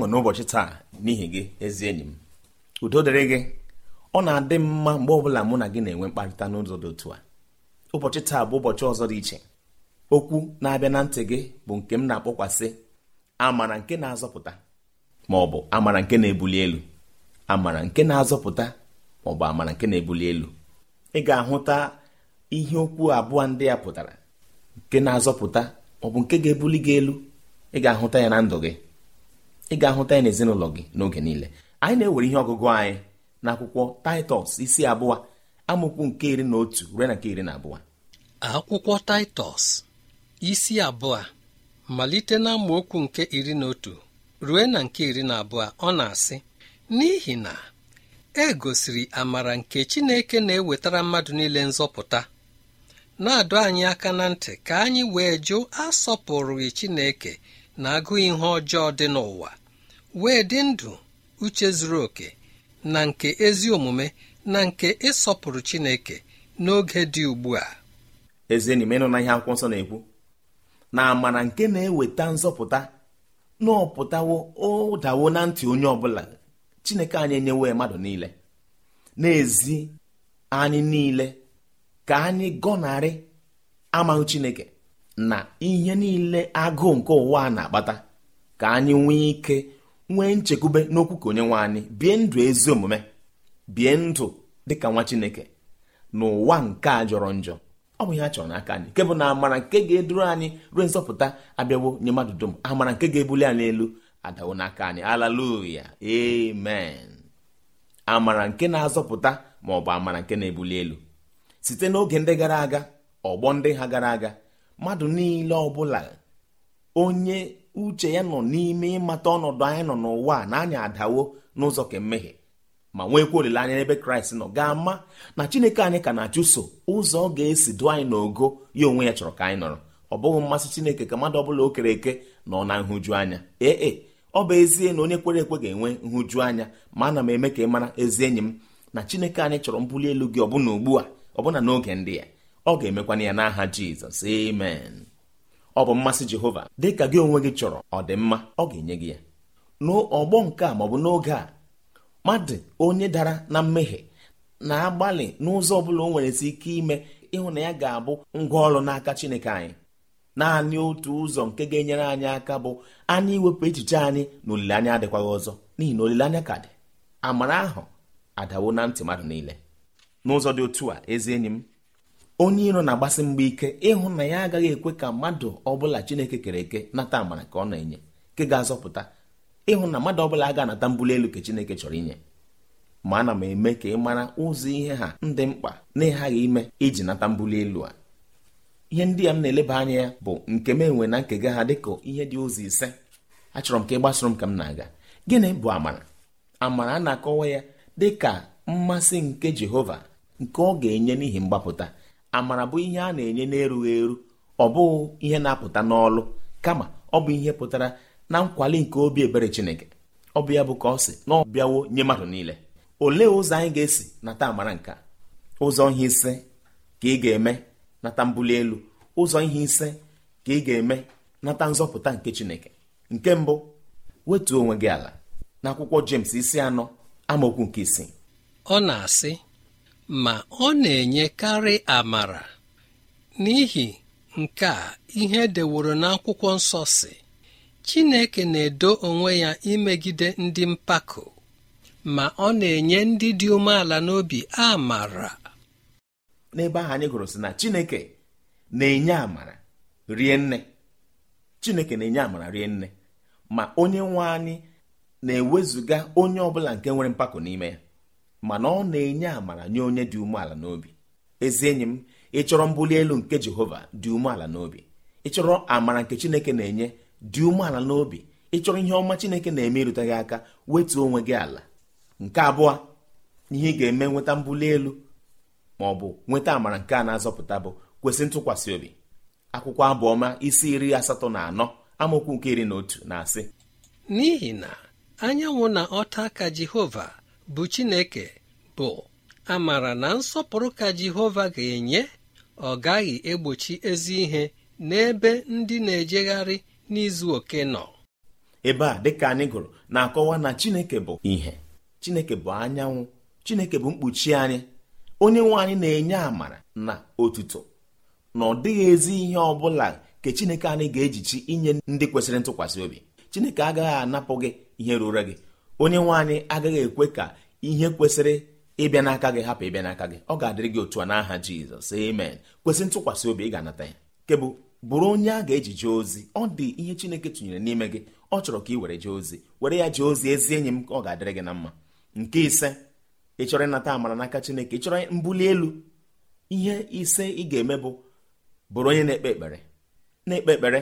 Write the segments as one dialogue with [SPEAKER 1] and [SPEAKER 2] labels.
[SPEAKER 1] ọṅụ n'ụbọchị taa n'ihi gị ezi enyi m udo dịrị gị ọ na-adị mma mgbe ọbụla mụ na gị na-enwe mkparịta n'ụzọ dị otu a ụbọchị taa bụ ụbọchị ọzọ dị iche okwu na-abịa na ntị gị bụ nke m na-akpọkwasị amara nke na-azọpụta ma ọ bụ amara nke na-ebuli elu amara nke na-azọpụta ma ọ bụ amara nke na-ebuli elu ị ga-ahụta ihe okwu abụọ ndị ya pụtara nke na-azọpụta maọ ọ bụ nke ga-ebuli gị elu ị ga-ahụta ya na ndụ gị ị ga-ahụta ya n'ezinụlọ gị n'oge niile anyị na-ewere ihe ọgụgụ anyị n'akwụkwọ taịtọs
[SPEAKER 2] isi abụọ amụkwu nke iri na otu ruo na nke iri na abụọ akwụkwọ taịtọs isi abụọ malite na amaokwu nke iri na otu ruo na nke iri na abụọ ọ na-asị n'ihi na e gosiri amara nke Chineke na-ewetara mmadụ niile nzọpụta na-adọ anyị aka na ntị ka anyị wee jụ asọpụrụghị Chineke na agụụ ihe ọjọọ dị n'ụwa wee dị ndụ uche zuru oke na nke ezi omume na nke ịsọpụrụ Chineke n'oge dị ugbu a ezi enyi m ịnụ na ihe
[SPEAKER 1] akwụkwọ nsọ na-ekwu na amara nke na-eweta nzọpụta n'ọpụtawo ụdawo na ntị onye ọbụla Chineke anyị enyewe mmadụ niile n'ezi anyị niile ka anyị gọnarị amaghị Chineke na ihe niile agụụ nke ụwa na-akpata ka anyị nwee ike nwee nchekwube n'okwu ka onye nwe anyị bie ndụ ezi omume bie ndụ dịka nwa chineke n'ụwa nke a jọrọ njọ ọ bụ ihe a chọrọ n'aka anyị nke bụ na amara nke ga-eduru anyị ruo nzọpụta abịawo nye mmadụ dum amara nke ga-ebuli anyị elu adawo n'aka anyị alaluya amen amara nke na-azọpụta ma ọ bụ amara nke na-ebuli elu site n'oge ndị gara aga ọgbọ ndị ha gara aga mmadụ niile ọbụla onye uche ya nọ n'ime ịmata ọnọdụ anyị nọ n'ụwa na anyị adawo n'ụzọ ka ma nwekwa olileanya n'ebe kraịst nọ ga-ama na chineke anyị ka na-achụso ụzọ ọ ga-esi dụ anyị n'ogo ya onwe ya chọrọ ka anyị nọrọ ọ bụghị mmasị chineke ka mmadụ ọbụla o kere eke nọ na nhụju anya ee e, ọ bụ ezie na onye kwere ekwe ga-enwe nhụju anya ma ana m eme ka ị mara ezi enyi m na chineke anyị chọrọ mbuli elu gị ọbụna ugbu a ọbụna n'oge ndị ya ọ ga-emekwana ya n'aha jizọs amen ọ bụ mmasị Jehova dị ka gị onwe gị chọrọ ọ mma ọ ga-enye gị ya n'ọgbọ nke a maọbụ n'oge a mmadụ onye dara na mmehie na-agbalị n'ụzọ ọ bụla o nwere si ike ime ịhụ na ya ga-abụ ngwa ọrụ n'aka Chineke anyị naanị otu ụzọ nke ga-enyere anyị aka bụ anyị iwepụ echiche anyị na olileanya adịkwaghị ọzọ n'ihi na olileanya ka dị amara ahụ adawo na ntị mmadụ niile n'ụzọ dị otu a ezi enyi m onye iro na-agbasi mgba ike ịhụ na ya agaghị ekwe ka mmadụ ọbụla chineke kere eke nata amara ka ọ na-enye nke ga-azọpụta ịhụ na mmadụ ọbụla aga anata mbuli elu ka chineke chọrọ inye ma ana m eme ka ị mara ụzọ ihe ha ndị mkpa na ịghaghị ime iji nata mbuli elu a ihe ndị ya m na-eleba anya ya bụ nke m enwe na nkega ha dịka ihe dị ụzọ ise achọrọ m ka ị gbasoro m ka m na-aga gịnị bụ amara amara a na-akọwa ya dị ka mmasị nke jehova nke ọ ga-enye n'ihi mgbapụta amara bụ ihe a na-enye n'erughị eru ọ bụghị ihe na-apụta n'ọlụ kama ọ bụ ihe pụtara na nkwali nke obi ebere Chineke ọ bụ ya bụ ka ọ sị na ọ bịawo nye mmadụ niile olee ụzọ anyị ga-esi nata amara nke ụzọ ihe ise ka ị ga-eme nata mbuli elu ụzọ ihe ise ka ị ga-eme nata nzọpụta nke Chineke nke mbụ wetuo onwe gị ala akwụkwọ James isi anọ amaokwu nke isii
[SPEAKER 2] ọ na-asị ma ọ na-enyekarị amara n'ihi nke a ihe deworo n'akwụkwọ nsọ si Chineke na-edo onwe ya imegide ndị mpako ma ọ na-enye ndị dị umeala n'obi amara n'ebe ahụ anyị gụrụ sị na Chineke na-enye
[SPEAKER 1] amara rie nne Chineke na-enye amara rie nne ma onye nwe anyị na-ewezụga onye ọbụla nke nwere mpako n'ime ya mana ọ na-enye amara nye onye dị umeala n'obi ezi enyi m ịchọrọ mbuli elu nke jehova dị umeala n'obi ịchọrọ amara nke chineke na-enye dị umeala n'obi ịchọrọ ihe ọma chineke na-eme irute gị aka wetuo onwe gị ala nke abụọ ihe ị ga-eme nweta mbuli elu ma ọ bụ nweta amara nke a na-azọpụta bụ kwesị ntụkwasị obi akwụkwọ abụọma isi iri asatọ na anọ amaokwu nke iri na otu na-asị n'ihi
[SPEAKER 2] na anyanwụ na ọta aka jehova bụ Chineke bụ amara na nsọpụrụ ka Jehova ga-enye ọ gaghị egbochi ezi ihe n'ebe ndị na-ejegharị n'izu oke nọ ebe a dịka
[SPEAKER 1] anyị gụrụ na-akọwa na Chineke bụ ihe Chineke bụ anyanwụ Chineke bụ mkpuchi anyị onye nwe anyị na-enye amara na otuto na ọ dịghị ezi ihe ọ bụla nke Chineke anyị ga-ejichi inye ndị kwesịrị ntụkwasị obi Chineke agaghị anapụ gị ihe ruru gị onye nwe anyị agaghị ekwe ka ihe kwesịrị ịbịa n'aka gị hapụ ịbịa n'aka gị ọ ga-adịrị gị otu a n'aha jizọs amen kwesị ntụkwasị obi ị ga-anata ya kebụ bụrụ onye a ga-eji jee ozi ọ dị ihe chineke tụnyere n'ime gị ọ chọrọ ka ị were jee ozi were ya jee ozi ezi enyi m ka ọ ga-adịrị gị na mma nke ise ị chọrọ ịnata amara n'aka chineke ị chọrọ mbuli elu ihe ise ị ga-eme bụ bụrụ onye na-ekpe
[SPEAKER 2] ekpere na-ekpe ekpere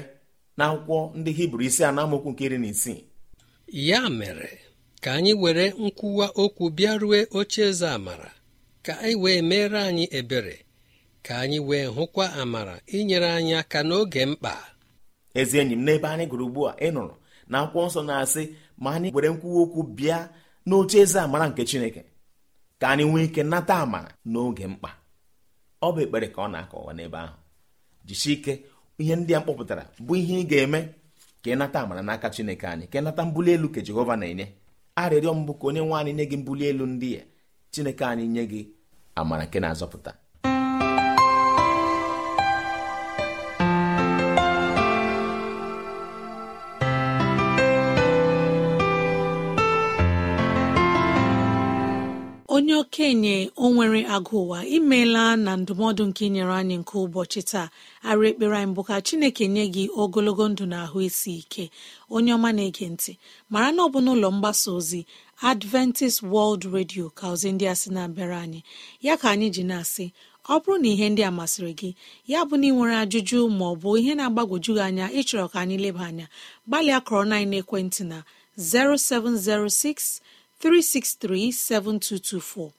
[SPEAKER 2] na akwụkwọ ndị hibru isi a na nke iri na isii ya mere ka anyị were nkwuwa okwu bịa rue oche eze amara ka anyị wee meere anyị ebere ka anyị wee hụkwa amara inyere anyị aka n'oge mkpa ezi enyi m n'ebe anyị gụrụ ugbu a ị nụrụ na akwụkwọ nsọ na-asị
[SPEAKER 1] ma anyị were nkwuwa okwu bịa n'oche eze amara nke chineke ka anyị nwee ike nata amara n'oge mkpa ọ bụ ekpere ka ọ na-akọwa n'ebe ahụ jisie ike ihe ndị a mkpọpụtara bụ ihe ị ga-eme ka ị nata amara n'aka chineke anyị ka ị nata mbuli elu ka jehova na-enye arịrịọ mbụ ka onye nwe anyị nye gị mbuli elu ndị ya chineke anyị nye gị amara nke na-azọpụta
[SPEAKER 3] okenye onwere nwere agụ ụwa imeela na ndụmọdụ nke inyere anyị nke ụbọchị taa arụ ekpere anyị bụ ka chineke nye gị ogologo ndụ na ahụ isi ike onye ọma na-ege ntị mara na ọ bụ n'ụlọ mgbasa ozi adventist world radio ka ozi ndị a sị na-abịara anyị ya ka anyị ji na-asị ọ bụrụ na ihe ndị a masịrị gị ya bụ na ị nwere ajụjụ ma ọ bụ ihe na-agbagwoju gị anya ịchọrọ ka anyị leba anya gbalịa kọrọ na ekwentị na 0706 363 7224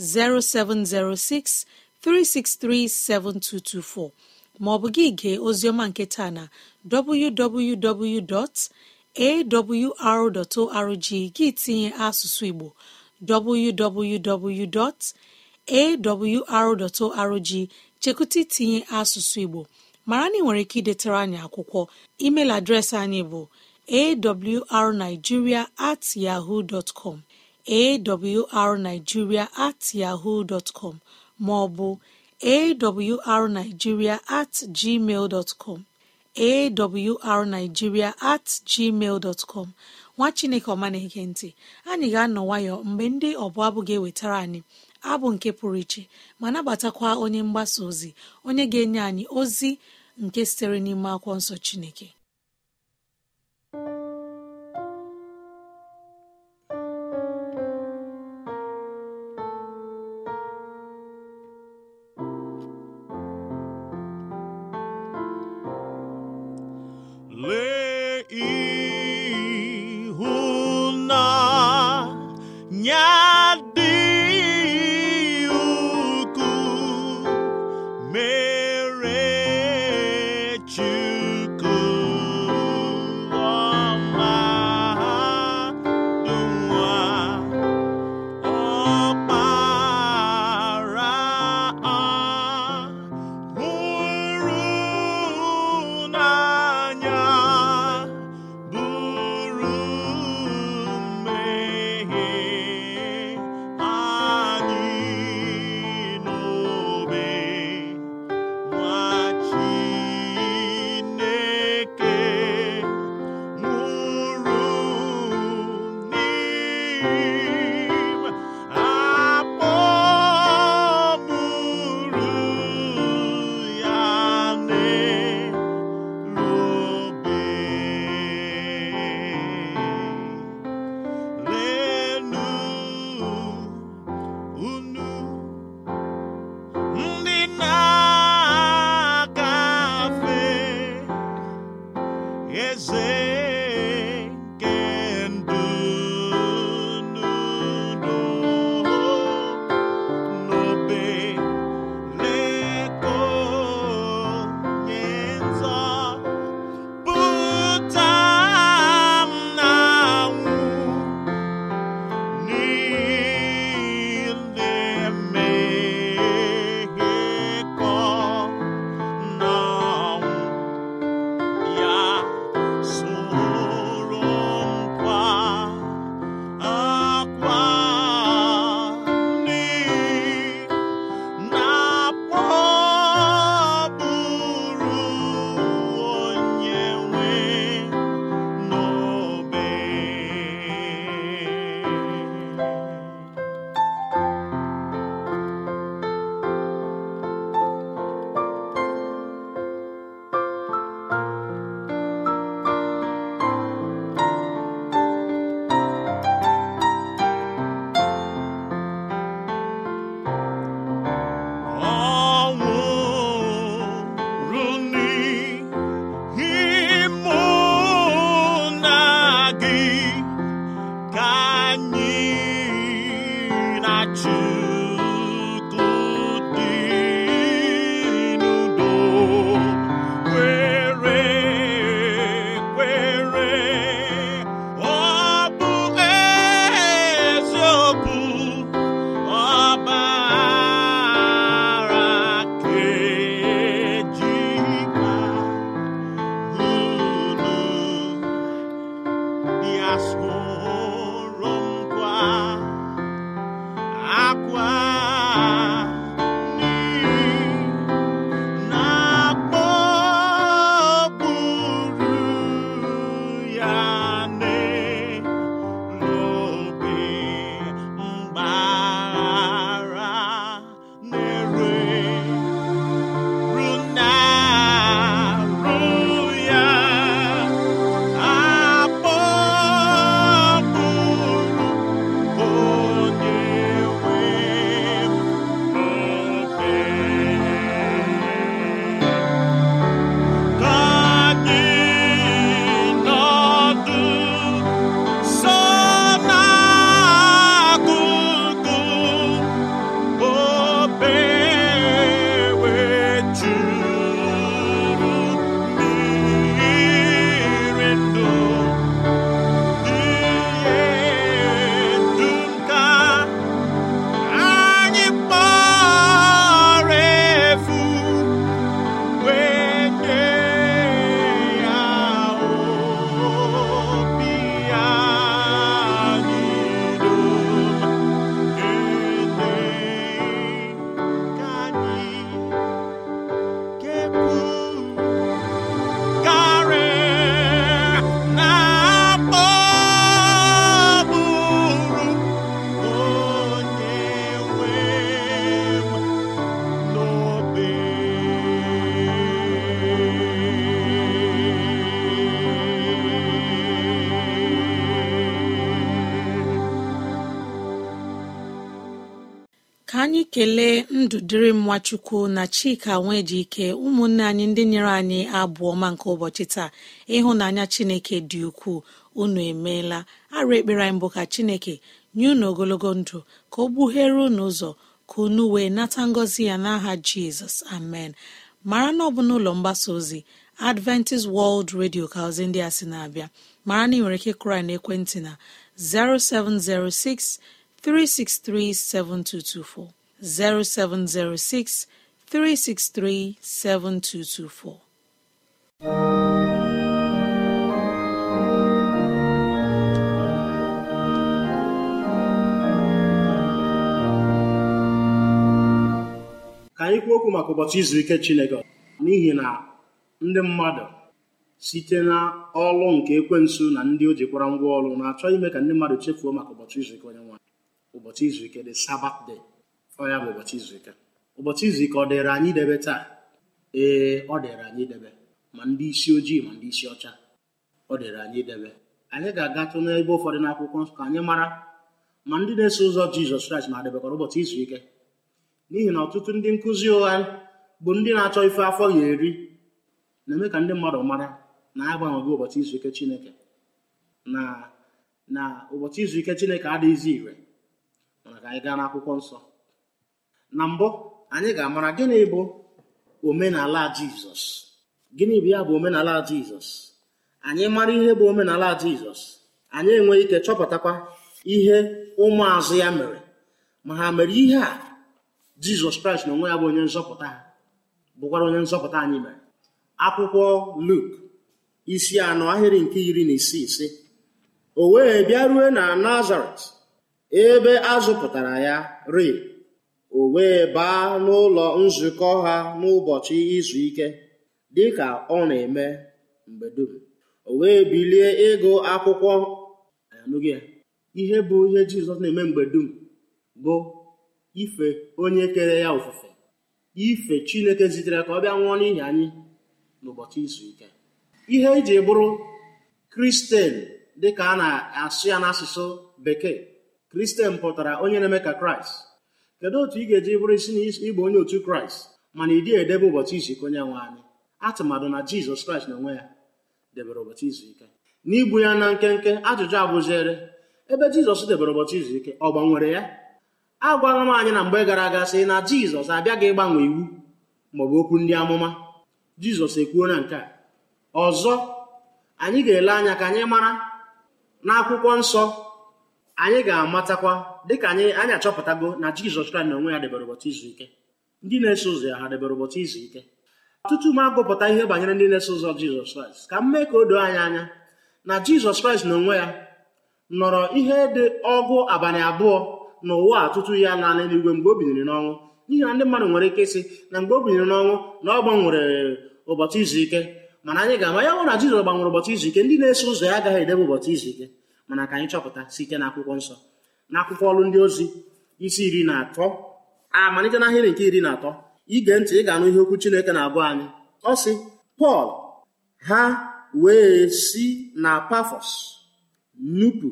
[SPEAKER 3] 0706 363 7224 maọbụ gị gee nke nketa na www.awr.org gị tinye asụsụ Igbo www.awr.org chekụta itinye asụsụ Igbo mara na ị nwere ike idetara anyị akwụkwọ email adreesị anyị bụ awrnigeria at yahoo dot awrnigeria at yahoo dot com ma awrnigeria at gmail dot com at gmail dot nwa chineke ọma na-ege ntị anyị ga-anọ nwayọ mgbe ndị ọbụla abụ ga-ewetara anyị abụ nke pụrụ iche ma nabatakwa onye mgbasa ozi onye ga-enye anyị ozi nke sitere n'ime akwụkwọ nsọ chineke kelee ndụ dịrị m nwachukwu na chika nwee ike ụmụnne anyị ndị nyere anyị abụ ọma nke ụbọchị taa ịhụnanya chineke dị ukwuu unu emeela arụ ekpere anyị mbụ ka chineke nye unu ogologo ndụ ka ọ gbughere unu ụzọ ka unu wee nata ngọzi ya n'aha jizọs amen mara na ọ bụ n'ụlọ mgbasa ozi adventist world radio ka ozi ndị a sị na-abịa mara na ị nwere ike kụrụ na ekwentị na 0706 363 7224 0706 363 7224.
[SPEAKER 4] ka anyị kwuo okwu maka ụbọchị izu ike Chineke n'ihi na ndị mmadụ site na ọlụ nke ekwensu na ndị o jikwara ngwa ọlụ na-achọ ime ka ndị mmadụ chefuo maka ụbọchị izu ike onye nwaanyị ụbọchị izu ike dị sabatde ọ ya bụ ụbọchị izu ike ụbọchị izu ike ọ dịịrị anyị idebe taa ee ọ dịịrị anyị idebe ma ndị isi ojii ma ndị isi ọcha ọ dịịrị anyị idebe anyị ga-agatụ n'ebe ụfọdụ n'akwụkwọ nsọ ka anyị mara ma ndị na-eso ụzọ jizọs kraịst na-adebekwara ụbọchị izu ike n'ihi na ọtụtụ ndị nkụzi ụgha bụ ndị na-achọ ife afọ ya eri na-eme ka ndị mmadụ mara na agbanweghị ụbọchị izu ike chineke na na ụbọchị izu ike chineke adịghịzi ire mana ka anyị gaa n'akwụkwọ nsọ na mbụ anyị ga-amara gịnị bụ omenala jizọs gịnị bụ ya bụ omenala jizọs anyị mara ihe bụ omenala jizọs anyị enweghị ike chọpụtakwa ihe ụmụazụ ya mere ma ha mere ihe a jizọs kraịst na onwe ya bụ onye nzọpụta ha bụkwara onye nzọpụta anyị mere akwụkwọ luk isi anọ ahịrị nke iri na isii ise o wee bịa na nazaret ebe a zụpụtara ya ri o wee baa n'ụlọ nzukọ ha n'ụbọchị izu ike dịka ọ na-eme mgbe dum o wee bilie ịgụ akwụkwọ anụghị ihe bụ ihe Jizọs na-eme mgbe dum bụ ife onye kere ya ofufe ife Chineke zitere ka ọ bịa nwụọ n'ihi anyị n'ụbọchị izu ike ihe eji bụrụ kristian dịka a na-asụ ya n'asụsụ bekee kristen pụtara onye na-eme ka kraịst kedu otu ị ga-eji bụrụ isi na onye otu kraịst mana ị dịghị edebe ụbọchị izu ike onye nwe anyị atụmadụ na jizọs kraịst na onwe ya debere ụbọchị izu ike n'igbu ya na nkenke ajụjụ abụziere ebe jizọs debere ụbọchị izu ike ọ gbanwere ya a gwara m anyị na mgbe gara aga sị na jizọs abịaghị ịgbanwe iwu maọbụ okwu ndị amụma jizọs ekwuo na nke a ọzọ anyị ga-ele anya ka anyị mara n'akwụkwọ nsọ anyị ga-amatakwa dịka anyị anyị achọpụtago na jizọs kraịst na onwe ya debere ụbọchị izu ike ndị na-eso ụzọ ya ha debere ụbọchị izu ike ọtụtụ m agụpụta ihe banyere ndị na-eso ụzọ jizọs kraịst ka m mee ka o doo anyị anya na jizọs kraịst na onwe ya nọrọ ihe dị ọgụ abalị abụọ na ụwa atụtụ ya n'ala eluigwe mgbe o binyere n'ọnwụ n'ihi na ndị mmadụ nwere ike ịsị na mgbe o binyere n'ọnwụ na ọ gbanwere ụbọchị izu ike mana anyị ga-ama ya hụ na jizọs gbanwere ụbọchị izu ike ndị na-eso ụzọ ya agaghị edebe ụbọchị izu ike mana ka anyị chọpụta site na akwụkwọ nsọ na akwụkwọ ọrụ ndị ozi isi iri na atọ amalite ah, na ahịrị nke iri na atọ ige ntị ị ga-anụ ihe okwu chineke na-agụ anyị ọ sị pọl ha wee si na pafọs nupu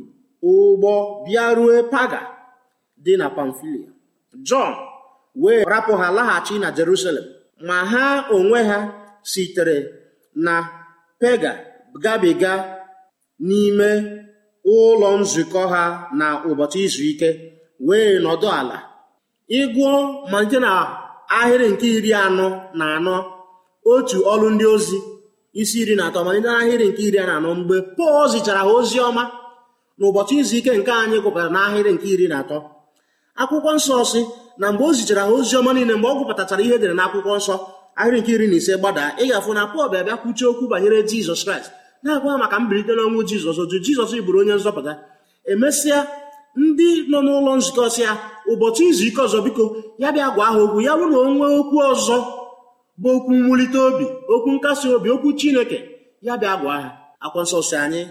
[SPEAKER 4] ụgbọ bịarue paga dị na pamfilia jọn wee rapụ ha laghachi na jerusalem ma ha onwe ha sitere na pega gabiga n'ime ụlọ nzukọ ha na ụbọchị izu ike wee nọdụ ala ịgụọ malite na ahịrị nke iri anọ na anọ otu ọlụ ndị ozi isi iri na atọ malite na ahịrị nke iri na anọ mgbe pọl zichara ha ozi ọma na ụbọchị izu ike nke anyị gụpụtara n'ahịrị nke iri na atọ akwụkwọ nsọ si na mgbe o zichara ha ozi ọma niile mgbe ọ gụpụtachara ihe edere akwụkwọ nsọ ahịrị nke iri na ise gbadaa ị ga-afụ na pọl bịa bịa kwuchie okwu banyere jizọs kraịst na-agwa maka mbilite n'ọnwụ jizọs jụ jizọs bụrụ onye nzọpụta emesịa ndị nọ n'ụlọ nzukọ sịa ụbọchị izu ike ọzọ biko ya bịa gwa ha okwu ya bụrụ na onwe okwu ọzọ bụ okwu mwulite obi okwu nkasi obi okwu chineke ya bịa gwa ha akwa nsọ si anyị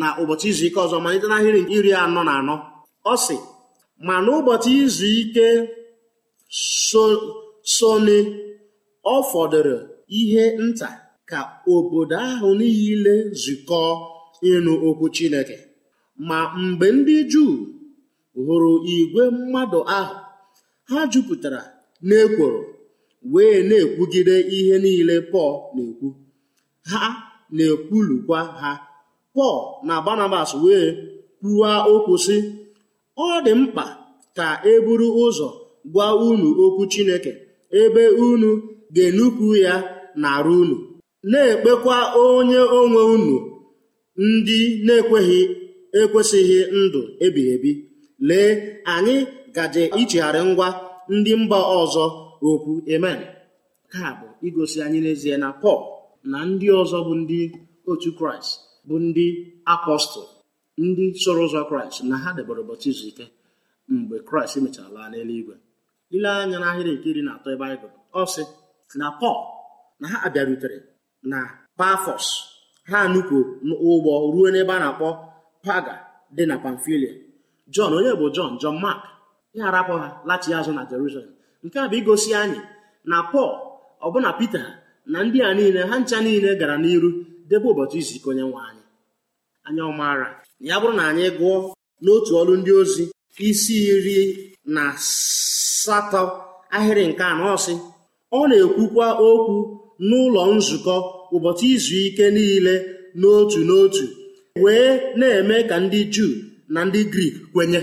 [SPEAKER 4] na ụbọchị izu ike ọzọ malite n'ahịrị iri anọ na anọ ọ sị ma n'ụbọchị izu ike sone ọ fọdụrụ ihe nta ka obodo ahụ niile zụkọọ ịnụ okwu Chineke ma mgbe ndị Juu hụrụ igwe mmadụ ahụ ha jupụtara n'ekworo wee na-ekwugide ihe niile Pọl na-ekwu ha na-ekwulukwa ha Pọl na Barnabas wee kwuwa okwu sị ọ dị mkpa ka e buru ụzọ gwa unu okwu Chineke ebe unu ga-enupụ ya n'ara unu na-ekpekwa onye onwe unu ndị na-ekweghị ekwesịghị ndụ ebighị ebi lee anyị gaje ichegharị ngwa ndị mba ọzọ okwu amen ka bụ igosi anyị n'ezie na pọl na ndị ọzọ bụ ndị otu kraịst bụ ndị apọstụl ndị soro ụzọ kraịst na ha debere ụbọchị izu ike mgbe kraịst mechara laa n'eluigwe ile anya n'ahịrị nke iri na atọ baịbụl ọ sị na pọl na ha abịarutere na Pafos ha nupụ ụgbọ ruo n'ebe a na-akpọ paga dị na Pamfilia Jọn onye bụ Jọn Jọn Mark ya arapụ ha lachi azụ na Jerusalem nke a bụ igosi anyị na Pọl ọbụna Pita na ndị a niile ha ncha niile gara n'iru debe ụbọchị izu ike onye nwe anyị anya ọmara ya bụrụ na anyị gụọ n'otu ọrụ ndị ozi isi iri na asatọ ahịrị nke anọ ọsị ọ na-ekwukwa okwu n'ụlọ nzukọ ụbọchị izu ike niile n'otu n'otu wee na-eme ka ndị juu na ndị grik kwenye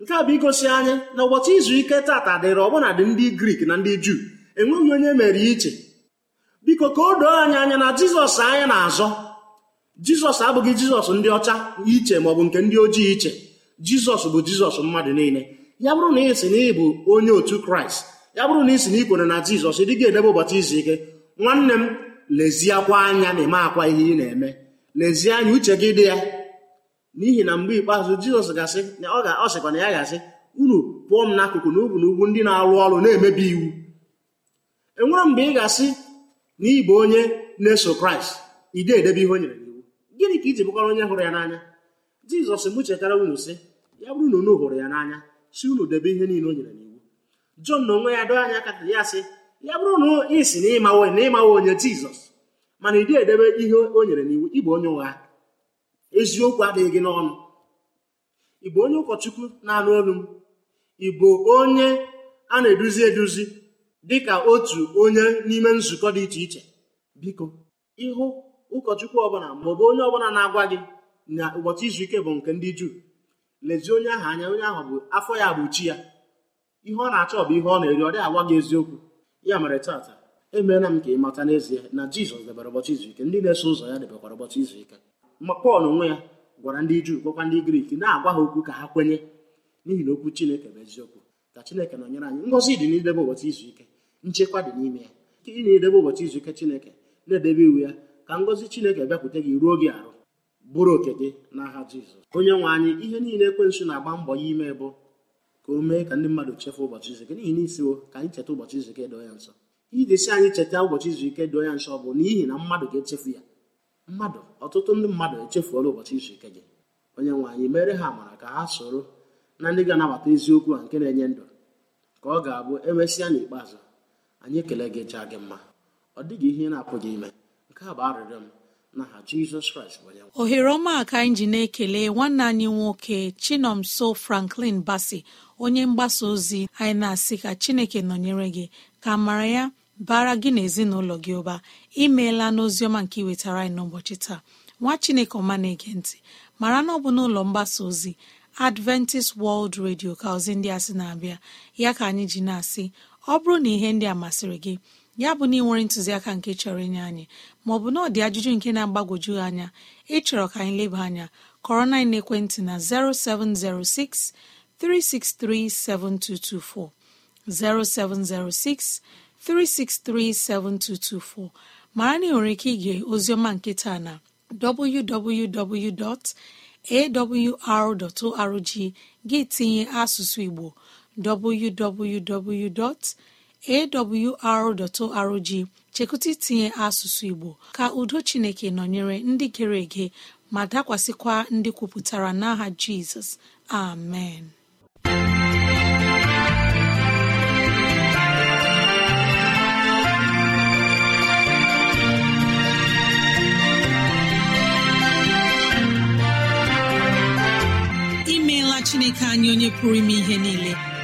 [SPEAKER 4] nke a bụ igosi anyị na ụbọchị izu ike tata dịrị dị ndị grik na ndị juu enweghị onye mere iche biko ka o doo anyị anya na jizọs anyị na-azọ jizọs abụghị jizọs ndị ọcha iche maọbụ nke ndị ojii iche jizọs bụ jizọs mmadụ niile ya bụrụ na ị sị na ị bụ onye otu kraịst ya bụrụ na isi na ikwere na jizọs dị edebe ụbọchị izu ike nwanne m lezie anya na eme akwa ihe ị na-eme lezie anya uche gị dị ya n'ihi na mgbe ikpeazụ jizọs gasị ọ sịkwa na ya gasị unu pụọ m n'akụkụ na n'ugwu na ndị na-arụ ọrụ na-emebi iwu enwere mgbe ị ga-asị na ịbụ onye na-eso kraịst ide edebe ihe o nyere n'iwu gịnị ka iji bụkwara onye hụrụ ya n'anya jizọs m chetara unu sị ya bụrụ na unu hụrụ ya n'anya si unu debe ihe niile o nyere Jọn na onwe ya doo anya aka ya sị ya bụrụ na ị si na ịmawo na onye Jizọs mana ị dịghị edebe ihe o nyere n'iwu ịbụ onye ụgha eziokwu adịghị gị n'ọnụ ị bụ onye ụkọchukwu na-anụ olu m ị bụ onye a na-eduzi eduzi dịka otu onye n'ime nzukọ dị iche iche biko ịhụ ụkọchukwu ọbụla maọbụ onye ọbụla na-agwa gị na ụbọchị izu ike bụ nke ndị Juu lezie onye ahụ anya onye ahụ bụ afọ ya bụ chi ya ihe ọ na-achọ bụ ihe ọ na-eri ọ dị agwa gị eziokwu ya mere tata emeela m ka ị mata n'ezie na jizọs debere ụbọchị izu ike ndị na-eso ụzọ ya debekwara ụbọchị izu ike ma pọl onwe ya gwara ndị juu gwakwa ndị grik na-agwa ha okwu ka ha kwenye n'ihi na okwu chineke bụ eziokwu ka chineke nọnyere anyị ngọzi dị n'idebe ụbọchị izu ike nchekwa dị n'ime ya ị na-edebe ụbọchị izu ike chineke na-edebe iwu ya ka ngọzi chineke bịakwute gị ruo gị arụ bụrụ oke gị n'aha jizọs onye nwe anyị ihe niile ekwensụ na-agba mbọ ya ime bụ ka o mee ka ndị mmadụ chefu ụbọchị izu n'ihi na ka anyị cheta ụbọchị izu ike doo ya nsọ idesi anyị cheta ụbọchị izu ike doo ya nsọ bụ n'ihi na mmadụ ga-echefu ya mmadụ ọtụtụ ndị mmadụ echefuola ụbọchị izu ike gị onye nwe anyị mere ha amara ka ha soro na ndị ga-anabata eziokwu a nke na-enye ndụ ka ọ ga-abụ emesịa n'ikpeazụ anyị ekele gị chaa gị mma ọ dịghị ihe na-apụghị ime nke a bụ arịrịọ m
[SPEAKER 3] ohere ọma ka anyị ji na-ekele nwanne anyị nwoke chinomso franklin basi onye mgbasa ozi anyị na-asị ka chineke nọnyere gị ka mara ya bara gị na ezinụlọ gị ụba imeela n'oziọma nke iwetara anyị n'ụbọchị taa nwa chineke ọma na-ege mara na ọ bụ n'ụlọ mgbasa ozi adventist world radio ka ozi ndị a sị na-abịa ya ka anyị ji na-asị ọ bụrụ na ihe ndị a masịrị gị ya bụ na ntuziaka nwere ntụziaka nke chọrọ inye anyị maọbụ na ọ dị ajụjụ nke na-agbagwoju anya ịchọrọ ka anyị leba anya kọrọ na na 0706 363 7224, 0706 363 7224. ma na ị nwere ike ige oziọma nkịta na www.awr.org gị tinye asụsụ Igbo www. awr.org chekụta itinye asụsụ Igbo ka udo Chineke nọnyere ndị gere ege ma dakwasịkwa ndị kwupụtara n'aha Jizọs amen imeela Chineke anyị onye pụrụ ime ihe niile